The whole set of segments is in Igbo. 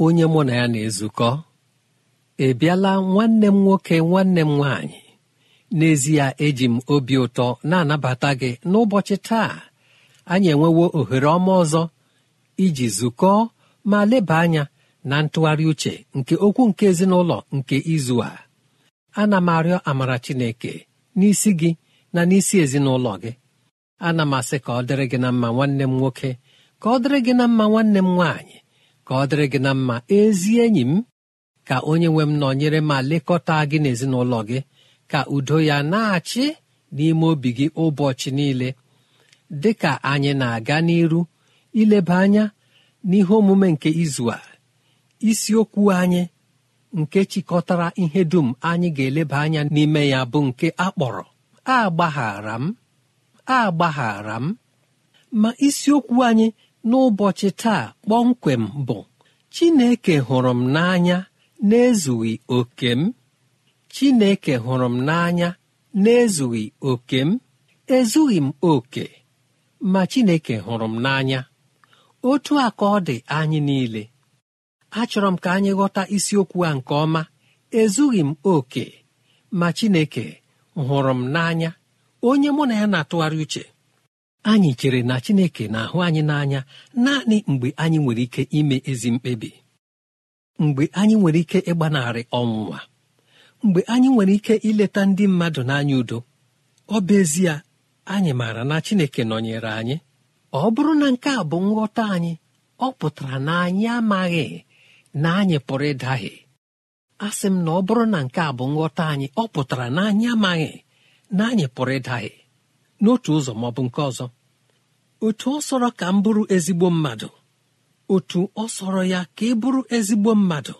onye mụ na ya na-ezukọ ị bịala nwanne m nwoke nwanne m nwaanyị n'ezie eji m obi ụtọ na-anabata gị n'ụbọchị taa anyị enwewo ohere ọma ọzọ iji zukọọ ma leba anya na ntụgharị uche nke okwu nke ezinụlọ nke izu a ana m arịọ amara chineke n'isi gị na n'isi ezinụlọ gị ana m asị ka ọ dịrị gị na mma nwanne m nwoke ka ọ dịrị gị na mma nwanne m nwaanyị ka ọ dịrị gị na mma ezi enyi m ka onye nwe m nọnyere ma lekọta gị n'ezinụlọ gị ka udo ya na-achị n'ime obi gị ụbọchị niile dị ka anyị na-aga n'iru ileba anya n'ihe omume nke izu a isiokwu anyị nke chịkọtara ihe dum anyị ga-eleba anya n'ime ya bụ nke akpọrọ agbaghara m agbaghara m ma isiokwu anyị n'ụbọchị taa kpọmkwem bụ Chineke hụrụ m n'anya na-ezughị oke m Chineke hụrụ m n'anya na-ezughị oke m ezughị m oke ma Chineke hụrụ m n'anya otu a ọ dị anyị niile achọrọ m ka anyị ghọta isiokwu a nke ọma ezughị m oke ma Chineke hụrụ m n'anya onye mụ na ya na-atụgharị uche anyị chere na chineke na-ahụ anyị n'anya naanị mgbe anyị nwere ike ime ezi mkpebi mgbe anyị nwere ike ịgbanarị ọnwụnwa mgbe anyị nwere ike ileta ndị mmadụ n'anya udo ọ bụ ezie anyị maara na chineke nọnyere anyị ọ bụrụ na nke a bụ nghọta anyị ọ pụtara na anyị amaghị na anyị pụrụ ịdahie sị m na ọ bụrụ na nke a bụ nghọta anyị ọ pụtara na anyị amaghị na anyị pụrụ ịdahie n'otu ụzọ ma ọ bụ nke ọzọ otu ọ sọrọ ka m bụrụ ezigbo mmadụ otu ọ sọrọ ya ka ị bụrụ ezigbo mmadụ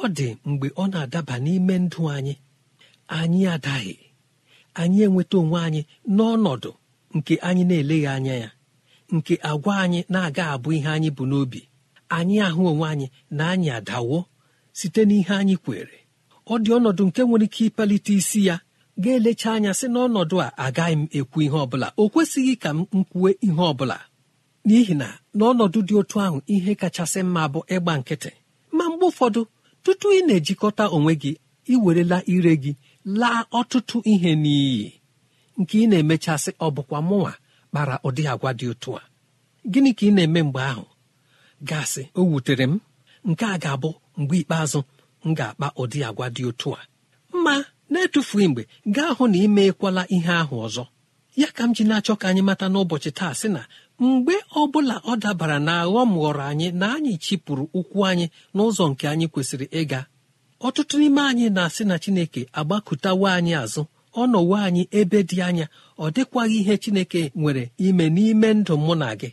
ọ dị mgbe ọ na-adaba n'ime ndụ anyị anyị adaghị anyị enweta onwe anyị n'ọnọdụ nke anyị na-eleghị anya ya nke agwa anyị na-aga abụ ihe anyị bụ n'obi anyị ahụ onwe anyị na anyị adawo site n'ihe anyị kwere ọ dị ọnọdụ nke nwere ike ịpalite isi ya ga-elecha anya sị n'ọnọdụ a agaghị m ekwu ihe ọbụla o kwesịghị ka m kwue ihe ọbụla n'ihi na n'ọnọdụ dị otu ahụ ihe kachasị mma bụ ịgba nkịtị ma mgbe ụfọdụ tutu ị na-ejikọta onwe gị iwerela ire gị laa ọtụtụ ihe n'iyi nke ị na-emechasị ọ bụkwa mụnwa kpara ụdị agwa dị otu a gịnị ka ị na-eme mgbe ahụ gasị o wutere m nke a ga-abụ mgbe ikpeazụ m ga-akpa ụdị agwa dị otu a ma na mgbe gaa hụ na imeekwala ihe ahụ ọzọ ya ka m ji na-achọ ka anyị mata n'ụbọchị taa sị na mgbe ọ bụla ọ dabara na aghọm ghọrọ anyị na anyị chịpụrụ ụkwụ anyị n'ụzọ nke anyị kwesịrị ịga ọtụtụ n'ime anyị na-asị na chineke agbakụtawa anyị azụ ọnọwo anyị ebe dị anya ọ dịkwaghị ihe chineke nwere ime n'ime ndụ mụ na gị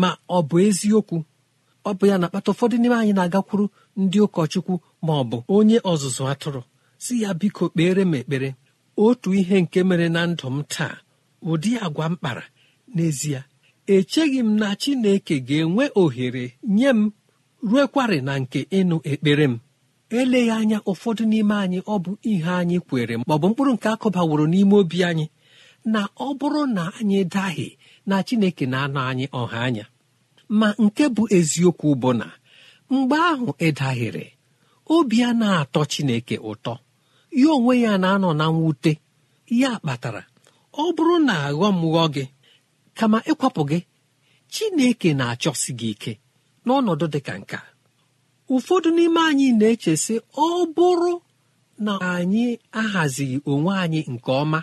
ma ọ bụ eziokwu ọ bụ ya na-akpata ụfọdụ n'ime anyị na-agakwuru ndị ụkọchukwu ma ọ bụ onye ọzụzụ atụrụ si ya biko kpere m ekpere otu ihe nke mere na ndụ m taa ụdị agwa m kpara n'ezie echeghị m na chineke ga-enwe ohere nye m ruekwarị na nke ịnụ ekpere m eleghị anya ụfọdụ n'ime anyị ọ bụ ihe anyị kwere ma ọ bụ mkpụrụ nke akụbaworo n'ime obi anyị na ọ bụrụ na anyị daghị na chineke na-anọ anyị ọha anya ma nke bụ eziokwu bụ na mgbe ahụ ịdahịrị obi a na-atọ chineke ụtọ ya onwe ya na-anọ na mwute ya kpatara ọ bụrụ na aghọm ghọọ gị kama ịkwapụ gị chineke na-achọsi gị ike n'ọnọdụ dị ka nka ụfọdụ n'ime anyị na-echesị ọ bụrụ na anyị ahazighị onwe anyị nke ọma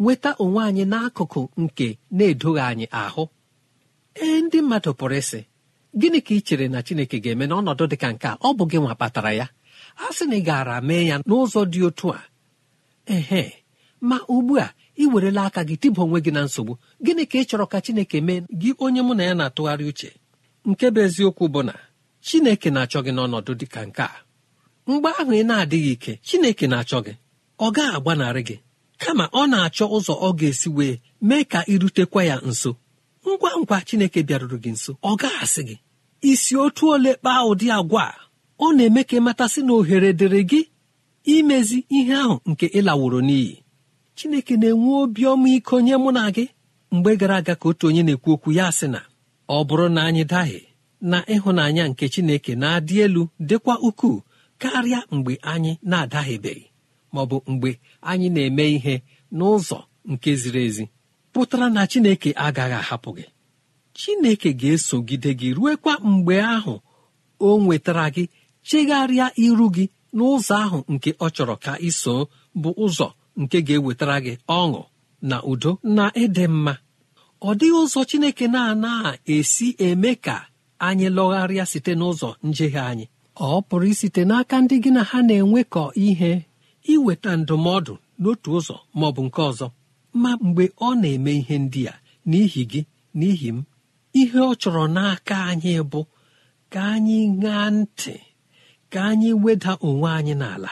nweta onwe anyị n'akụkụ nke na-edoghị anyị ahụ ee ndị mmadụ pụrụ ịsị gịnị ka ị chere na chineke ga-eme n'ọnọdụ dị ka nke ọ bụ gị nwa kpatara ya a sị na ị gaara mee ya n'ụzọ dị otu a ehe ma ugbu a ị werela aka gị tịba onwe gị na nsogbu gịnị ka ị chọrọ ka chineke mee gị onye mụ na ya na-atụgharị uche nke bụ eziokwu bụ na chineke na-achọ gị n'ọnọdụ dị ka nke a mgbe ahụ ị na-adịghị ike chineke na-achọ gị ọ gaghị agbanarị gị kama ọ na-achọ ụzọ ọ ga-esi wee mee ka ị rutekwa ya nso ngwa ngwa chineke bịaruru gị nso ọ gaghị asị gị isi otu ole kpaa ụdị agwa a ọ na-eme ka ịmatasị na ohere dịrị gị imezi ihe ahụ nke ịlaworo n'iyi chineke na-enwe obi ọmaiko nye mụ na gị mgbe gara aga ka otu onye na-ekwu okwu ya sị na ọ bụrụ na anyị daghị na ịhụnanya nke chineke na-adị elu dịkwa ukwuu karịa mgbe anyị na-adaghịbeghị ma ọ bụ mgbe anyị na-eme ihe n'ụzọ nke ziri ezi pụtara na chineke agaghị ahapụ gị chineke ga-esogide gị ruekwa mgbe ahụ o nwetara gị chegharịa iru gị n'ụzọ ahụ nke ọ chọrọ ka iso bụ ụzọ nke ga-ewetara gị ọṅụ na udo na ịdị mma ọ dịghị ụzọ chineke na-anaghị esi eme ka anyị lọgharịa site n'ụzọ njehie anyị ọ pụrụ isite n'aka ndị gị na ha na-enwekọ ihe iweta ndụmọdụ n'otu ụzọ ma ọ bụ nke ọzọ ma mgbe ọ na-eme ihe ndị a n'ihi gị n'ihi m ihe ọ chọrọ n'aka anyị bụ ka anyị ṅaa ntị ka anyị weda onwe anyị n'ala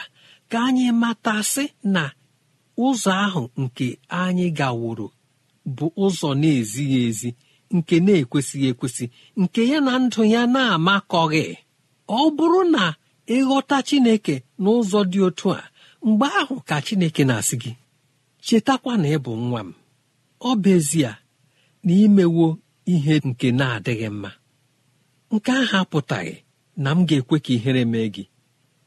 ka anyị matasị na ụzọ ahụ nke anyị gaworo bụ ụzọ na-ezighị ezi nke na-ekwesịghị ekwesị nke ya na ndụ ya na-amakọghị ọ bụrụ na ịghọta chineke n'ụzọ dị otu a mgbe ahụ ka chineke na-asị gị chetakwa na ị bụ nwa m ọ bụ ezie na imewo ihe nke na-adịghị mma nke ahụ apụtaghị na m ga-ekwe ka ihere mee gị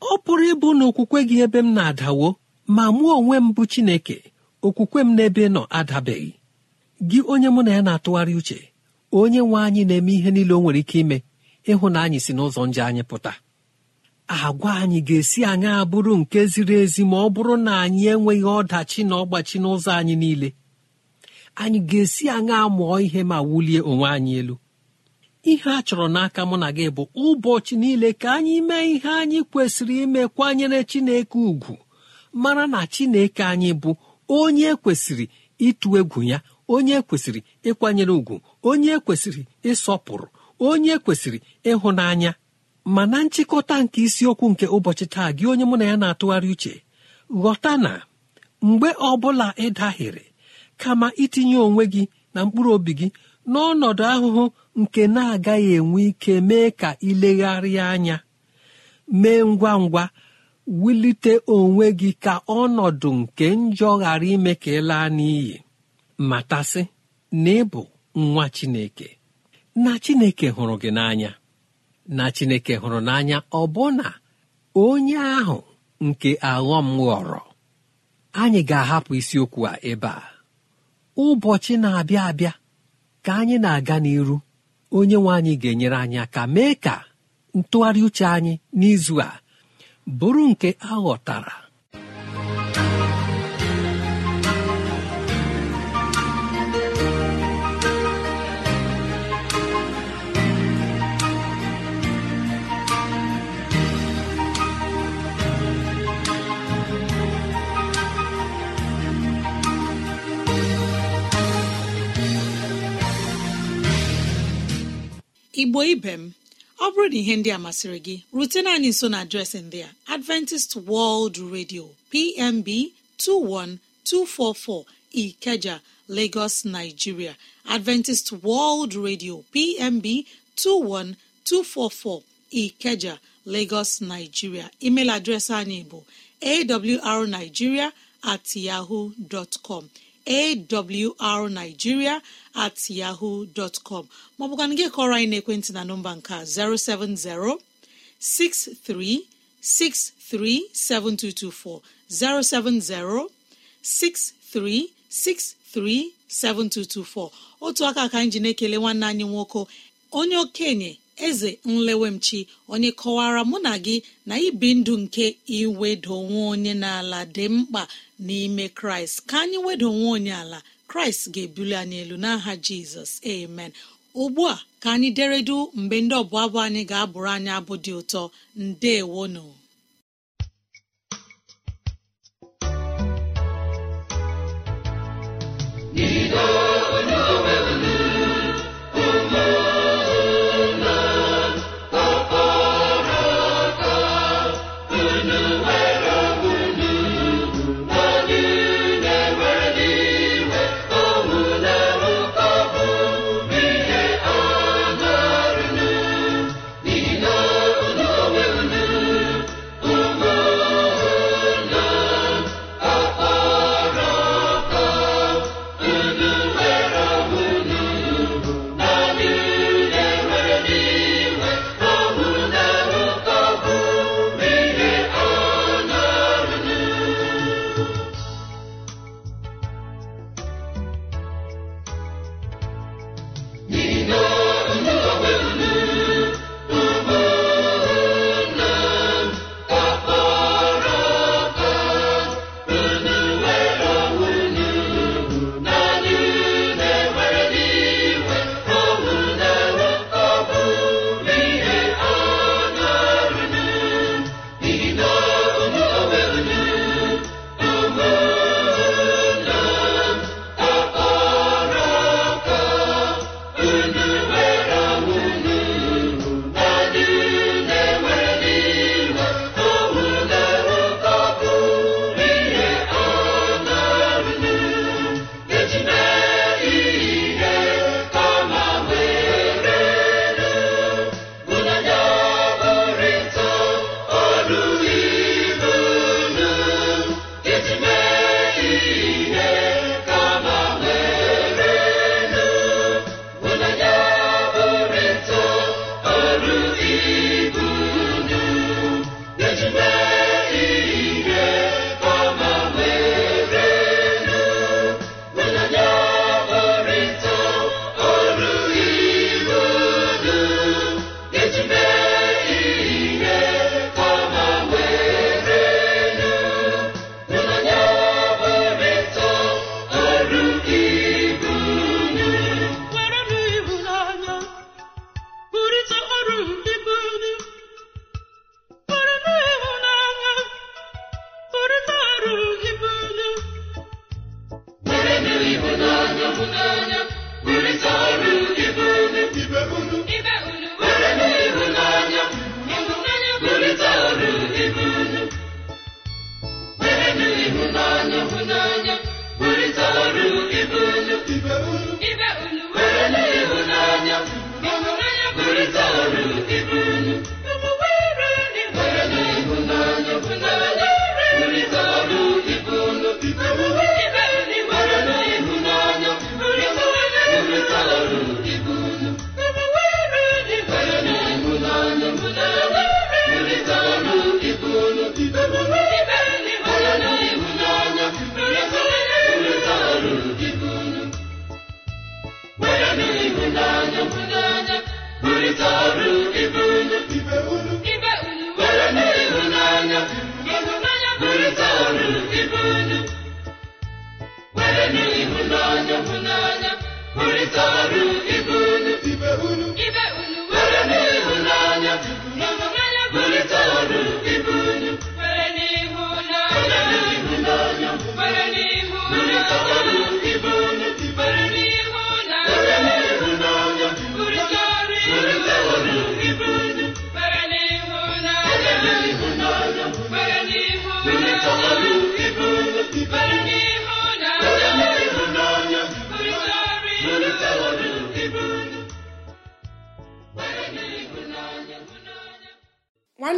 ọ pụrụ ịbụ na okwukwe gị ebe m na-adawo ma mụọ onwe m bụ Chineke okwukwe m n'ebe nọ adabeghị gị onye mụ na ya na-atụgharị uche onye nwe anyị na-eme ihe niile o nwere ike ime ịhụ na anyị si n'ụzọ nje anyị pụta agwa anyị ga-esi anyị abụrụ nke ziri ezi ma ọ bụrụ na anyị enweghị ọdachi na ọgbachi n'ụzọ anyị niile anyị ga-esi anyị amụọ ihe ma wulie onwe anyị elu ihe a chọrọ n'aka mụ na gị bụ ụbọchị niile ka anyị mee ihe anyị kwesịrị ime kwanyere chineke ugwu mara na chineke anyị bụ onye kwesịrị ịtụ egwu ya onye kwesịrị ịkwanyere ugwu onye kwesịrị ịsọpụrụ onye kwesịrị ịhụnanya ma na nchịkọta nke isiokwu nke ụbọchị taa gị onye mụ na ya na-atụgharị uche ghọta na mgbe ọ bụla ị kama itinye onwe gị na mkpụrụ obi gị n'ọnọdụ ahụhụ nke na-agaghị enwe ike mee ka ilegharịa anya mee ngwa ngwa wulite onwe gị ka ọnọdụ nke njọ ghara ime ka ị laa n'iyi matasị na ịbụ nwa Chineke na Chineke hụrụ gị n'anya na Chineke hụrụ n'anya ọbụna onye ahụ nke aghọm ghọrọ anyị ga-ahapụ isiokwu a ebe a ụbọchị na-abịa abịa ka anyị na-aga n'iru onye nwe anyị ga-enyere anyị aka mee ka ntụgharị uche anyị n'izu a bụrụ nke aghọtara igbo ibe m ọ bụrụ na ihe ndị a masịrị gị rutena anyị nso na adreesị ndị a adventist world radio pmb 21244 ikeja lagos nigeria adventist world radio pmb 21244 ikeja lagos nigeria email adreesị anyị bụ awrnigeria at yahoo dot com awrnigeria at yahoo dọtcọm maọbụkwana gị kọrọ anyị n'ekwentị na nọmba nke 070 7224 070 otu aka ka anyị ji na-ekele nwanne anyị nwoke onye okenye eze nlewemchi onye kọwara mụ na gị na ibi ndụ nke iwedo onwe onye n'ala dị mkpa n'ime kraịst ka anyị wedo onwe onye ala kraịst ga-ebuli anyị elu n'aha jizọs amen ugbu a ka anyị deredu mgbe ndị ọbụ abụ anyị ga-abụrụ anyị abụ dị ụtọ ndeewonu.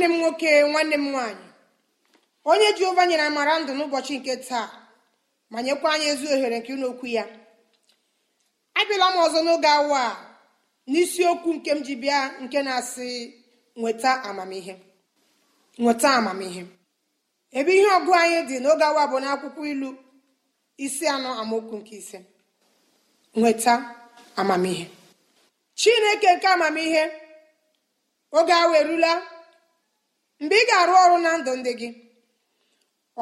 nwanne m nwoke nwanne m nwaanyị onye jehova nyere amara ndụ n'ụbọchị nke taa ma nyekwa anyị ezi ohere nke ụlọ ya abịala m ọzọ n'oge awa a n'isiokwu nke m ji bịa nke na-asị nweta amamihe nweta amamihe ebe ihe ọgụ anyị dị n'oge awa bụ n'akwụkwọ ilu isi anọ amaokwu nke ise nweta amamihe chineke nke amamihe oge awa erula mgbe ị ga-arụ ọrụ na ndụ ndị gị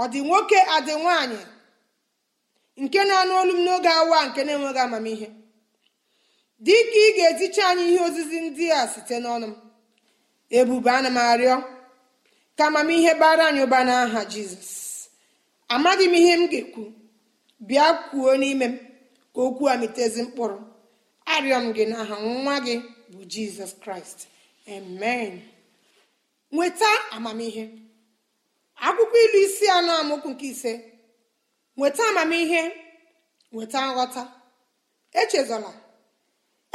ọ dị nwoke adị nwaanyị nke na-anụ olu m n'oge awa nke na-enweghị amamihe dị ka ị ga-eticha anyị ihe ozizi ndị a site n'ọnụ m ebube ana m arịọ ka amamihe bara anyị ụba n'aha jizọs amaghị m ihe m ga-ekwu bịa kwuo n'ime m ka okwu a mkpụrụ arịọ m gị n'aha nwa gị bụ jizọs kraịst amen nweta amamihe akwụkwọ ilu isi anọ amụkwu nke ise nweta amamihe nweta nghọta echezola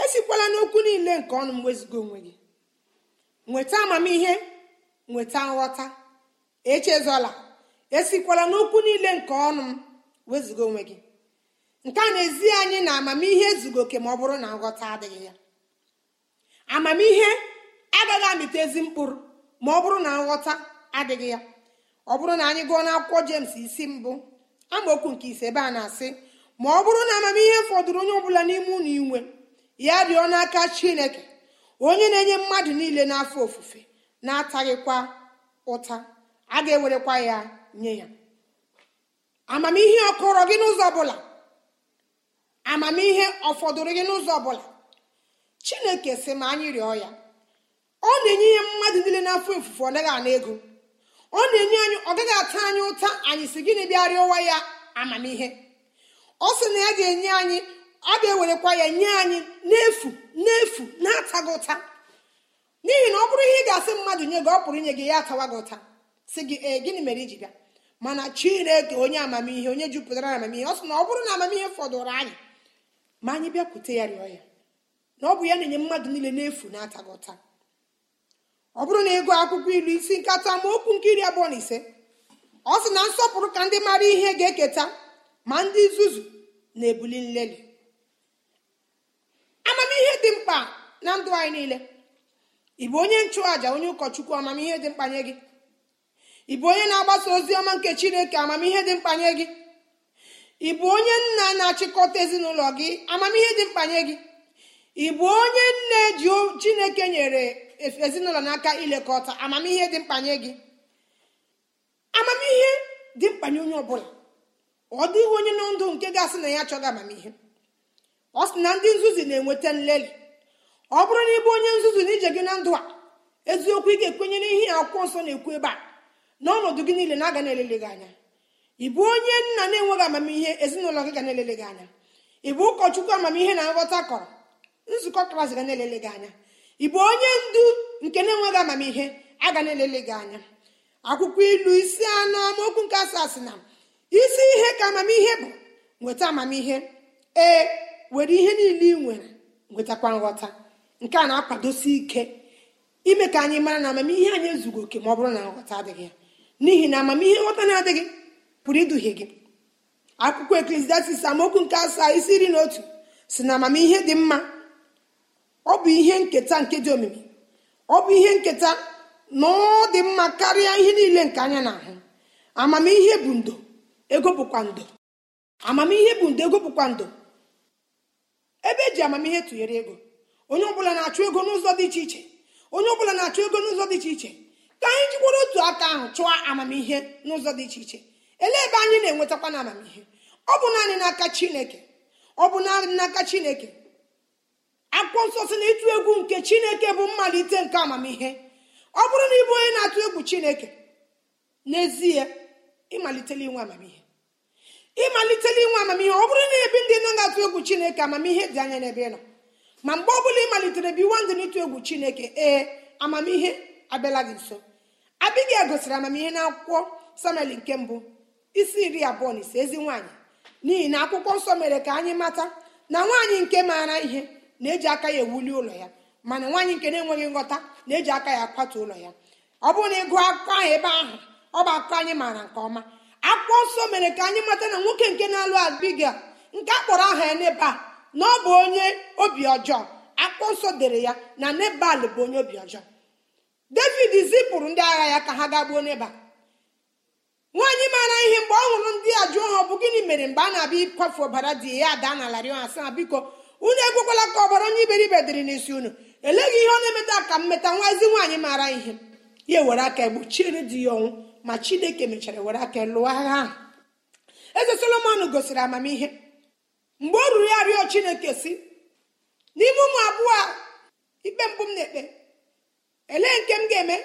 esikwala n'okwu niile nke ọnụ m wezụga onwe gị nweta amamihe nweta nghọta echezola esikwala n'okwu niile nke ọnụ m wezụga onwe gị nke a na-ezi anyị na amamihe ezugo oke ma ọ bụrụ na nghọta adịghị ya amamihe agaghị amịta ezi mkpụrụ ma ọ bụrụ na nghọta adịghị ya ọ bụrụ na anyị gụọ n'akwụkwọ jems isi mbụ amaokwu nke ise ebe a na-asị ma ọ bụrụ na amamihe fọdụrụ onye ọbụla n'ime unu inwe ya rịọ n'aka chineke onye na-enye mmadụ niile n'afọ ofufe na-ataghịkwa ụta a ga-ewerekwa ya nye ya amamihe ọkọrọ gị n'ụzọ ọbụla amamihe ọfọdụrụ gị n'ụzọ ọbụla chineke si ma anyị rịọ ya ọ na-enye ihe mmadụ niile n'afọ ofufe ọ naghị ana ego ọ na-enye anyị ọ gaghị ata anyị ụta anyị si gịnị bịarịa ụwa ya amamihe ọ sị na ya ga-enye anyị a ga-ewerekwa ya nye anyị n'efu n'efu na-ataghị ụta n'ihi na ọ bụrụ ihe ị ga-asị mmadụ nye gị ọ pụrụ inye gị ya atawa gị ụta si gị ee gịnị mere iji bịa mana chineke onye amamihe onye jupụtara amamihe ọ sị na ọ bụrụ na amamihe fọdụrụ anyị ma anyị bịakwute ya rịọ ya na ọ bụ ya na-enye mmadụ niile n'efu na-ataghị ụta ọ bụrụ na ego akwụkwọ ilu isi nkata ma okwu nke abụọ na ise ọ sị na nsọpụrụ ka ndị mara ihe ga-eketa ma ndị nzuzu na-ebuli nlelị amamihe dị mkpa na ndụ anyị niile ị onye nchụàja onye ụkọchukwu amamihe dị mkpa nye gị ị onye na-agbasa ozi ọma nke chineke amamihe dị mkpa nye gị ị bụ onye nna na-achịkọta ezinụlọ gị amamihe dị mkpa nye gị ị bụ onye nne chineke nyere ezinụlọ n'aka ilekọta amamihe dị mkpanye gị amamihe dị mkpanye onye ọbụla ọ dịghị onye nọ ndụ nke ga-asị na ya achọghị amamihe ọ sị na ndị nzuzi na-enweta nlelị ọ bụrụ na ịbụ onye nzuzi na ije gị na ndụ a eziokwu ị ga-ekwenye n'ihe akwụkwọ nsọ na-ekwu ebe a n'ọnọdụ gị niile na-aga na-elele gị anya ị bụ onye nna na-enweghị amamihe ezinụlọ gị ga na-elele gị anya ị bụ ụkọchukwu amamihe na nghọta kọrọ nzukọ kraịst ga na-elele gị anya ị bụ onye ndu nke na-enweghị amamihe aga na-elele gị anya akwụkwọ ilu isi anọ amaokwu nke asaa sị na isi ihe ka amamihe bụ nweta amamihe ee were ihe niile ị nwere nwetakwa nghọta nke a na-akwadosi ike ime ka anyị mara na amamihe anyị ezughị oke ma ọ bụrụ na nghọta adịghị ya n'ihi na amamihe nghọta na-adịghị pụrụ iduhie gị akwụkwọ eklesiastis amaokwu nke asaa isi iri na otu si na amamihe dị mma ọ bụ ihe nketa nke dị omimi ọ bụ ihe nketa na ọ dị mma karịa ihe niile nke anya na-ahụ amamihe bụ ndo ego bụkwa ndo amamihe bụ ndo ego bụkwa ndo ebe eji amamihe tụnyere ego onye ọbụla na-achụ ego n'ụzọ dị iche iche onye ọbụla na-achụ ego n'ụzọ dị iche iche ka anyị jikwara otu aka ahụ chụọ amamihe n'ụzọ dị iche iche elee ebe anyị na-enwetakwa na amamihe ọ bụ naanị n'aka chineke ọ bụ naanị n'aka chineke akwụkwọ nsọ si na ịtụ egwu nke chineke bụ mmalite nke amamihe ọ bụrụ na ịbụ onye na-atụ egwu chineke n'ezie ịmalitela inwe amamihe ịmalitela inwe amamihe ọ bụrụ na ebi ndị nọ na-atụ egwu chineke amamihe dị anya n'ebe ị nọ ma mgbe ọ bụla ịmalitere biwa ndị n'ịtụ egwu chineke ee amamihe abịala gị nso abịghị gosiri amamihe na akwụkwọ samuel nke mbụ isi iri abụọ na ise ezi nwaanyị n'ihi na akwụkwọ nsọ mere ka anyị mata na nwaanyị nke maara ihe na-eji aka ya ewuli ụlọ ya mana nwaanyị nke na-enweghị nghọta na-eji aka ya akwatu ụlọ ya ọ bụrụ na ị gụọ akụkọ ahụ ebe ahụ ọ bụ akụkọ anyị maara nke ọma akwụkwọ nsọ mere ka anyị mata na nwoke nke na-alụ abiga nke a kpọrọ aha ya a na ọ bụ onye obi ọjọọ akpụkpọ nsọ dere ya na nebal bụ onye obi ọjọọ david zipụrụ ndị agha ya ka ha gaa gbuo a nwaanyị maara ihe mgbe ọ hụrụ ndị a jụọ ha ọ bụ gịnị mere mgbe a na-abịa ịkwafu ọbara dị ya ada na larị ha na biko unu ekwekwala ka ọbara onye iberibe dịrị n'isi unu eleghị ihe ọ na-emeta ka m meta nwa ezi nwaanyị maara ihe ya ewere aka egbochiere di ya ọnwụ ma chineke mechara were aka lụọ agha ahụ eze solomon gosiri amamihe mgbe ọ ruru ya rịọ chineke si n'ime ụmụ abụọ a ikpe mbụ m na-ekpe elee nke m ga-eme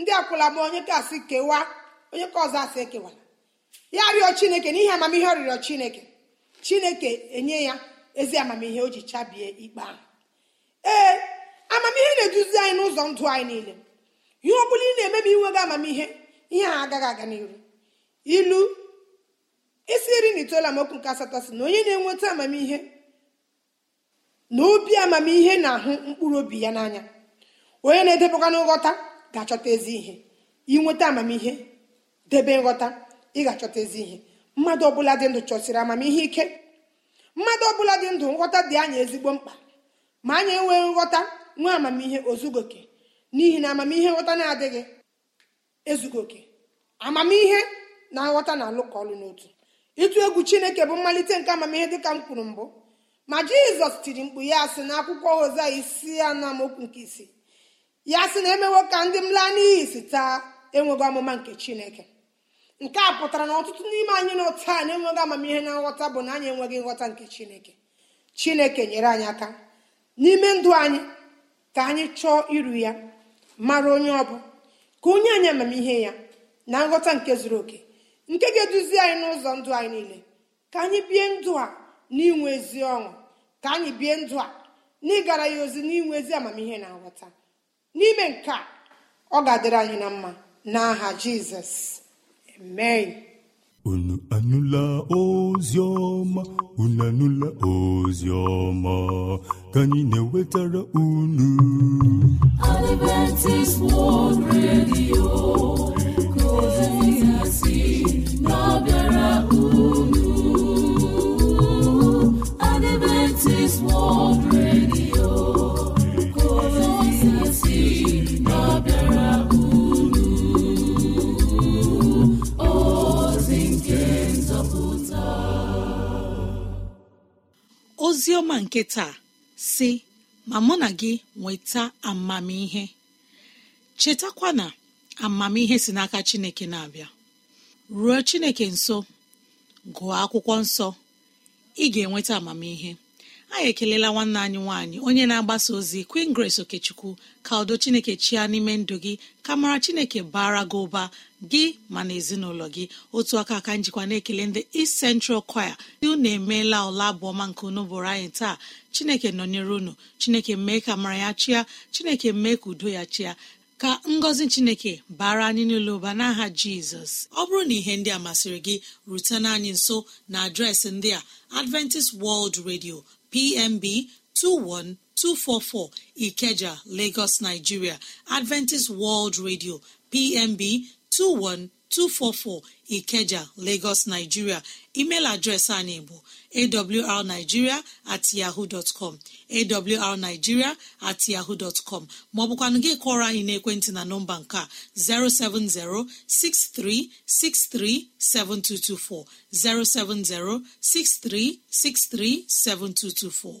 ndị akwụla m onye ka asị kewaa onye ka ọzọ asị ekewara ya rịọ chineke n'ihi amamihe ọ rịrịọ chineke chineke enye ya ezi amamihe o ji chabie ikpe ahụ ee amamihe na-eduzi anyị n'ụzọ ndụ anyị niile ihe ọ bụla ị na-eme ma inwe gị amamihe ihe a agaghị aga n'iru ilu isi iri na itoolu amaokwu nke asatọ si na onye na-enweta amamihe na obi amamihe na-ahụ mkpụrụ obi ya n'anya onye na-edebekwa n'ghọta ga-achọta ezi ihe inweta amamihe debe nghọta ị ga-achọta ezi ihe mmadụ ọbụla dị ndụ chọsiri amamihe ike mmadụ ọbụla dị ndụ nghọta dị anyị ezigbo mkpa ma anyị enweghị nghọta nwee amamihe ozugoke n'ihi na amamihe nghọta na-adịghị ezugoke amamihe na nghọta na-alụkọ ọlụ n'otu ịtụ egwu chineke bụ mmalite nke amamihe dịka m kwuru mbụ ma jizọs tiri mkpu ya si na akwụkwọ hoza isi anọ amaokwu nke isii ya sị na emewo ka ndị m laa n'iyi si taa enweghị ọmụma nke chineke nke a pụtara na ọtụtụ n'ime anyị n'otu na enweghị amamihe na nghọta bụ na anyị enweghị nghọta nke chineke chineke nyere anyị aka n'ime ndụ anyị ka anyị chọọ iru ya mara onye ọ bụ ka onye anyị amamihe ya na nghọta nke zuru oke nke ga-eduzi anyị n'ụzọ ndụ anyị niile ka anyị bie ndụ a n'inwe ezi ọṅụ ka anyị bie ndụ a n'ịgara ya ozi n'inwe ezi amamihe na nghọta n'ime nke a ọ ga-adịrị anyị na mma n'aha jizọs Amen. unu anụla ozi unu anụla ozi ka anyị na enwetara unu World Radio unu Adventist World ozi ọma nke taa si ma mụ na gị nweta amamihe chetakwa na amamihe si n'aka chineke na-abịa ruo chineke nso gụọ akwụkwọ nsọ ị ga-enweta amamihe anyị ekelela nwanne anyị nwaanyị onye na-agbasa ozi queen grace okechukwu ka udo chineke chia n'ime ndụ gị ka mara chineke bara gị ụba gị ma na ezinụlọ gị otu aka aka njikwa na-ekele ndị East Central Choir dị unu emeela ụla abụọma nke unu bụrụ anyị taa chineke nọnyere unu chineke mee ka mara ya chia chineke mee ka udo ya chia ka ngọzi chineke bara anyị niile ụba n'aha jizọs ọ bụrụ na ihe ndị a masịrị gị rutena anyị nso na adreesị ndị a adventist world radio PMB 21244 Ikeja, Lagos, Nigeria; Adventist World Radio PMB 21244 Ikeja Lagos Nigeria email adreesị anyị bụ awrnigeria at yahoo dot com awrnigeria maọbụkwanụ gị anyị n'ekwentị na nọmba nke a 070 6363 7224 070 6363 7224